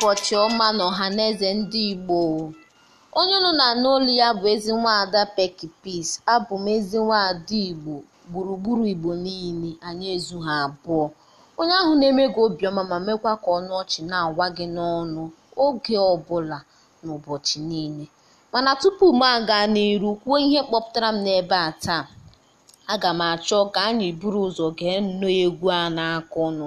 ụbọchị ọma n'ọhaneze ndị Igbo! Onye nọ na-anụ olu ya bụ ezi nwaada Pekky Peace. Abụ m ezi nwaada Igbo, gburugburu Igbo niile, anyị ezughị abụọ. Onye ahụ na-eme gị obiọma ma mekwa ka ọnụ ọchị na agwa gị n'ọnụ oge ọbụla n'ụbọchị niile. Mana tupu m aga n'iru kwuo ihe kpọpụtara m n'ebe a taa, aga m achọ ka anyị buru ụzọ gee nnọọ egwu a na ọnụ.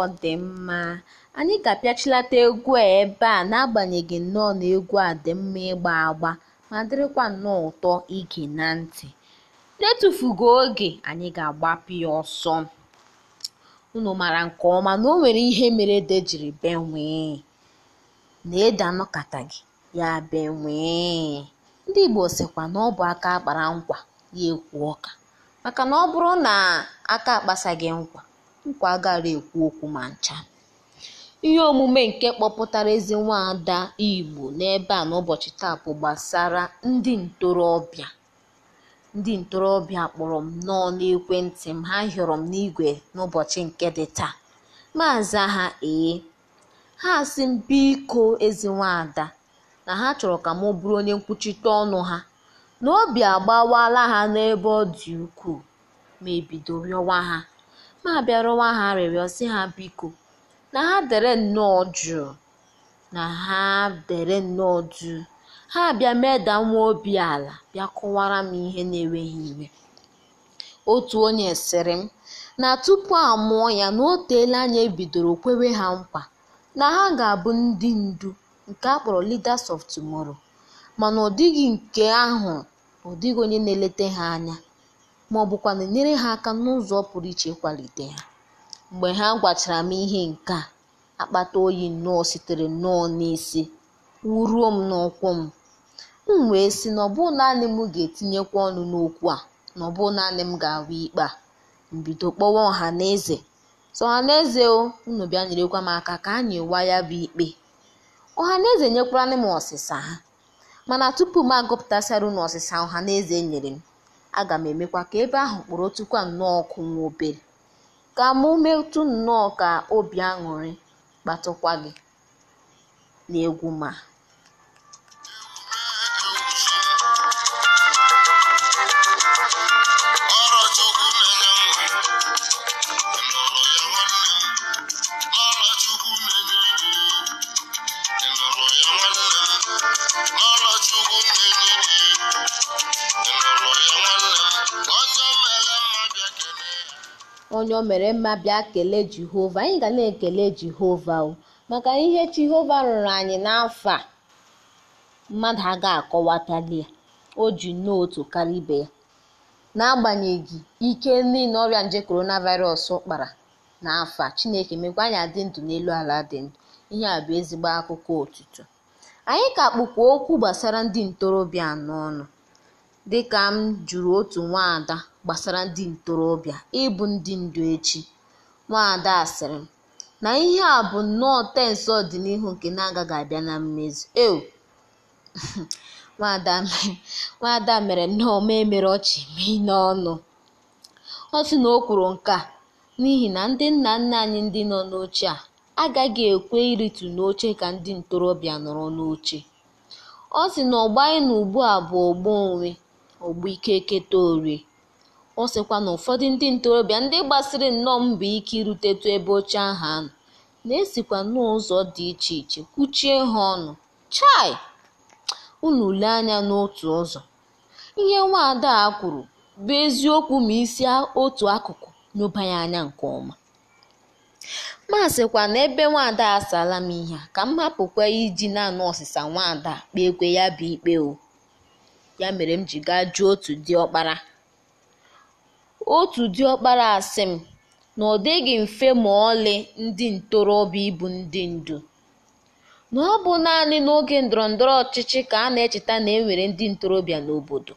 ọ dị mma anyị ga-apịachilata egwu a ebe a n'agbanyeghị nnọọ na egwu a dị mma ịgba agba ma dịrịkwa nnọọ ụtọ ige na ntị n'etufughị oge anyị ga-agbapụ ya ọsọ unu mara nke ọma na o nwere ihe mere ede jiri benwee na nọkata gị ya benwee ndị Igbo sịkwa na ọ bụ aka kpara nkwa ya ekwu ọka maka na ọ bụrụ na aka akpasaghị nkwa nkwa agaghị ekwu okwu ma ncha ihe omume nke kpọpụtara ezi nwada igbo n'ebe a n'ụbọchị taa bụ gbasara ndị ntorobịa ndị ntorobịa kpọrọ m nnọọ n'ekwentị m ha hịọrọ m n'igwe n'ụbọchị nke dị taa maazị ha ee ha si m biko ezi nwada na ha chọrọ ka m bụrụ onye nkwuchite ọnụ ha na obi agbawala ha n'ebe ọ dị ukwuu ma ebido rịọwa ha ma bịarụwa ha arịrịọ sị ha biko na ha dere nnọọ jụụ na ha dere nnọọ jụụ ha bịa meda nwa obi ala bịa kọwara m ihe na enweghị iwe otu onye sịrị m na tupu a mụọ ya na o anya anyị e ebidoro kwewe ha mkpa na ha ga-abụ ndị ndu nke akpọrọ leaders of tomorrow mana ọ dịghị nke ahụ ọ dịghị onye na-eleta ha anya ma ọ bụkwa na-enyere ha aka n'ụzọ pụrụ iche kwalite ha mgbe ha gwachara m ihe nke a akpata oyi nnọọ sitere nnọọ n'isi wuruo m n'ụkwụ m m wee sị na ọ naanị m ga-etinyekwa ọnụ n'okwu a na ọ naanị m ga-ahụ ikpe a mbido kpọwa ọha na eze so ọha na eze o unu bịa nyerekwa m aka ka anyị waa ya bụ ikpe ọha na eze nyekwara m ọsịsa ha mana tupu m agụpụtasịara unu ọsịsa ọha na eze nyere m aga m emekwa ka ebe ahụ kpụrụ kpọrọtụkwa nnọọ ọkụ nwa obere ka mụ metụ nnọọ ka obi aṅụrị kpatụkwa gị n'egwu ma onye o mere mma bịa kelee Jehova anyị ga na-ekele Jehova o maka ihe Jehova rụrụ anyị n'afọ a mmadụ aga akọwatali ya o ji n'otu karịa ibe ya n'agbanyeghị ike niile ọrịa nje coronavirus kpara n'afọ a Chineke mekwa anyị adị ndụ n'elu ala dị ndụ ihe a bụ ezigbo akụkọ otutu anyị ka kpụkwa okwu gbasara ndị ntorobịa n'ọnụ dịka m jụrụ otu nwaada gbasara ndị ntorobịa ịbụ ndị ndu echi, Nwaada sịrị, na ihe a bụ nnọọ tensị ọdịnihu nke na-agaghị abịa na mmezu. “Ew, Nwaada mere nnọọ m emere ọchị mee n'ọnụ. ọ sị na o kwuru nke a n'ihi na ndị nna nna anyị ndị nọ n'oche a agaghị ekwe ịrịtụ n'oche ka ndị ntorobịa nọrọ n'oche. Ọ sị na ọgbọ anyị nọ ugbu a bụ ọgbọ onwe, ọgbọ keta orie. Ọ sịkwa na ụfọdụ ndị ntorobịa ndị gbasiri nnọọ mbọ ike tụọ ebe oche ahụ nọ, na-esikwa n'ụzọ dị iche iche kwuchie ha ọnụ. Chai! Unu lee anya n'otu ụzọ, ihe nwaada a kwuru bụ eziokwu ma isi otu akụkụ n'ụbanye anya nke ọma. Ma sịkwa na ebe nwaada a m ihe a, ka m hapụkwa iji naanị ọsịsa nwaada kpee kwe ya bụ ikpe o. Ya mere m ji gaa jụọ otu dị ọkpara. Otu diọkpara asị m, na ọ dịghị mfe ma ọlị ndị ntorobịa ịbụ ndị ndu, na ọ bụ naanị n'oge ndọrọndọrọ ọchịchị ka a na-echeta na e ndị ntorobịa n'obodo,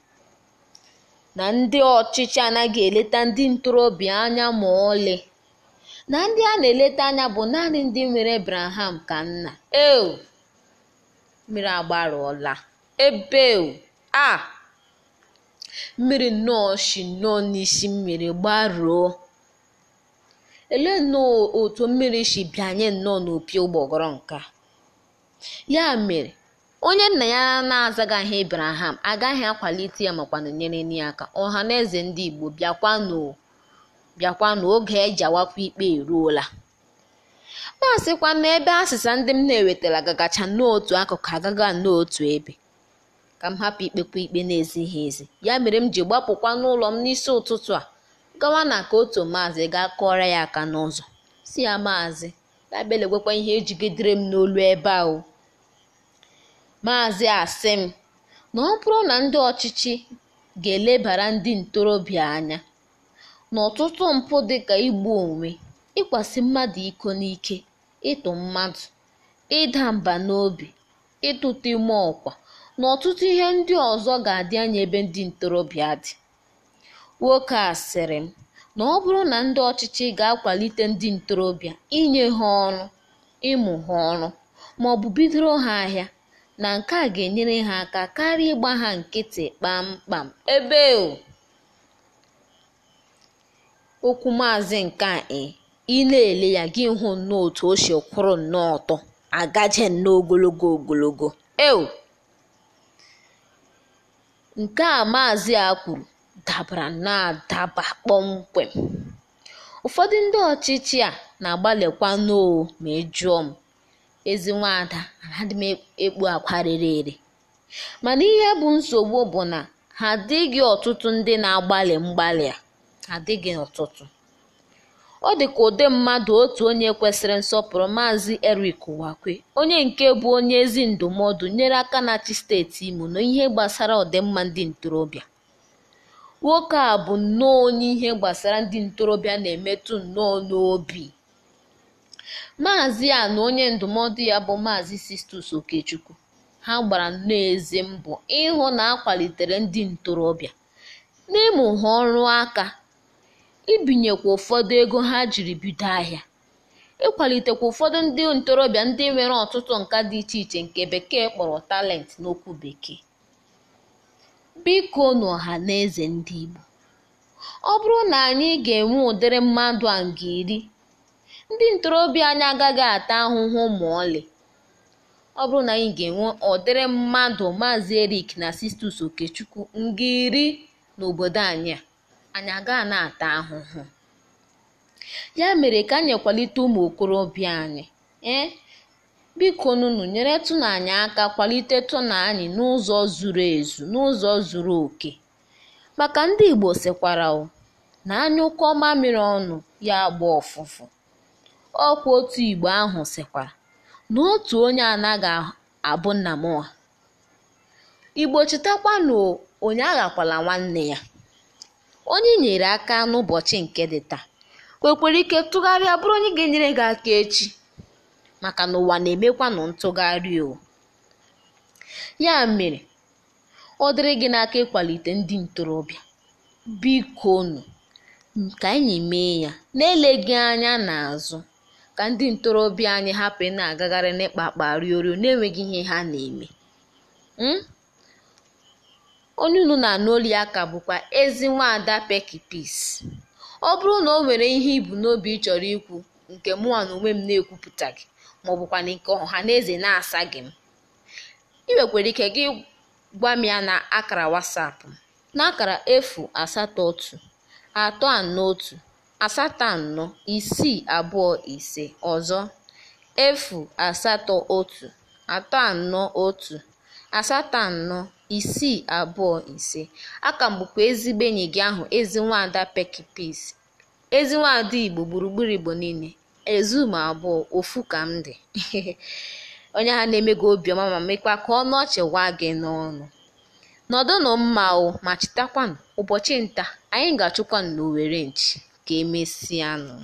na ndị ọchịchị anaghị eleta ndị ntorobịa anya ma ọlị, na ndị a na-eleta anya bụ naanị ndị nwere Ebreham ka nna. Ew! Mmiri Ebe a ah! mmiri nnọọ si nnọọ n'isi mmiri gbaruo ele nnọọ otu mmiri si bịanye nnọọ n'opi ụgbọgọrọ nke a ya mere onye nna ya na-azagaghị Abraham agaghị akwalite ya makwanụ nyere ya aka ọha na eze ndị Igbo bịakwa n'oge oge e awakwa ikpe eruola ma sịkwa na ebe asịsa ndị m na-ewetara gagacha n'otu akụkụ agaga n'otu ebe ka m hapụ ikpekwa ikpe na ezi ya mere m ji gbapụkwa n'ụlọ m n'isi ụtụtụ a gawa na ka otu maazị gaa kụọra ya aka n'ụzọ si ya maazị na-abịalegwekwa ihe ejigidere m n'olu ebe ahụ maazị asị m na ọ bụrụ na ndị ọchịchị ga-elebara ndị ntorobịa anya n'ọtụtụ mpụ dịka igbu onwe ịkwasị mmadụ iko n'ike ịtụ mmadụ ịda mba n'obi ịtụta ime ọkwa na ọtụtụ ihe ndị ọzọ ga-adị anya ebe ndị ntorobịa dị. Nwoke a sịrị m na ọ bụrụ na ndị ọchịchị ga-akwalite ndị ntorobịa inye ha ọrụ, ịmụ ha ọrụ, ma ọ bụ bidoro ha ahịa, na nke a ga-enyere ha aka karịa ịgba ha nkịtị kpamkpam ebe okwu maazị nke a ị na-ele ya gị hụ nnọọ otu o si kwụrụ nnọọ ọtọ agaje nnọọ ogologo ogologo eo Nke a Maazị a kwuru dabara na-adaba kpọmkwem. Ụfọdụ ndị ọchịchị a na agbalịkwa oo ma ị m, ezi nwaada anaghị m e-, ekpu akwa rere ere. Mana ihe bụ nsogbu bụ na ha adịghị ọtụtụ ndị na-agbalị mgbalị a, adịghị ọtụtụ. Ọ dịka ụdị mmadụ otu onye kwesịrị nsọpụrụ Maazị Eric Uwakwe, onye nke bụ onye ezi ndụmọdụ nyere aka na-achị steeti Imo n'ihe gbasara ọdịmma ndị ntorobịa. Nwoke a bụ nnọọ onye ihe gbasara ndị ntorobịa na-emetụ nnọọ n'obi. Maazị a na onye ndụmọdụ ya bụ Maazị Sistus Okechukwu, ha gbara nnọọ ezi mbọ ịhụ na akwalitere ndị ntorobịa, na ha ọrụ aka ibinyekwa ụfọdụ ego ha jiri bido ahịa ịkwalitekwa ụfọdụ ndị ntorobịa ndị nwere ọtụtụ nka dị iche iche nke bekee kpọrọ talent n'okwu bekee biko n'ọha na eze ndị Igbo ọ bụrụ na anyị ga-enwe ụdịrị mmadụ a nga iri ndị ntorobịa anyị agaghị ata ahụhụ ma ọlị ọ bụrụ na anyị ga-enwe ọdịrị mmadụ maazị Erik na Sistus Okechukwu nga iri n'obodo anyị a anyị agaghị na-ata ahụhụ ya mere ka anyị kwalite ụmụ okorobịa anyị ee biko nụnụ nyere tụna aka kwalite tụna n'ụzọ zuru ezu n'ụzọ zuru oke maka ndị igbo sịkwara na ọma mamịrị ọnụ ya agba ọfụfụ ọkwa otu igbo ahụ sịkwara na otu onye anaghị abụ nna mụa igbo chetakwa onye aghakwala nwanne ya onye nyere aka n'ụbọchị nke dị taa nwekwara ike tụgharịa bụrụ onye ga-enyere gị aka echi maka na ụwa na-emekwanụ ntụgharị o ya mere ọ dịrị gị n'aka ịkwalite ndị ntorobịa bikonu ka anyị mee ya na-eleghị ele anya n'azụ ka ndị ntorobịa anyị hapụ ị na-agagharị n'ịkpakpa riorio na-enweghị ihe ha na-eme hmm? onye unu na-anụ aka ya ka bụkwa ezi nwaada Pekky Peace. Ọ bụrụ na o nwere ihe ibu n'obi ị chọrọ ikwu nke mụnwa na onwe m na gi maọbụkwanụ nke ọha na eze na asagi m ị nwekwara ike gị gwa m na akara wasapụ n'akara na akara efu asatọ otu atọ anọ otu asatọ anọ isii abụọ ise ọzọ efu asatọ otu atọ anọ otu asatọ anọ isii abụọ ise a kagbukwa ezigbo enyi gị ahụ ezi nwaada Pekki ezi nwaada Igbo gburugburu Igbo niile ezum abụọ ofu ka m dị onye ha na-eme gị obiọma ma mekwa ka ọnụ ọchị gwa gị n'ọnụ nọdụnụ mma o ma chetakwanụ ụbọchị nta anyị ga-achụkwanụ n'Owerre nchi ka emesianụ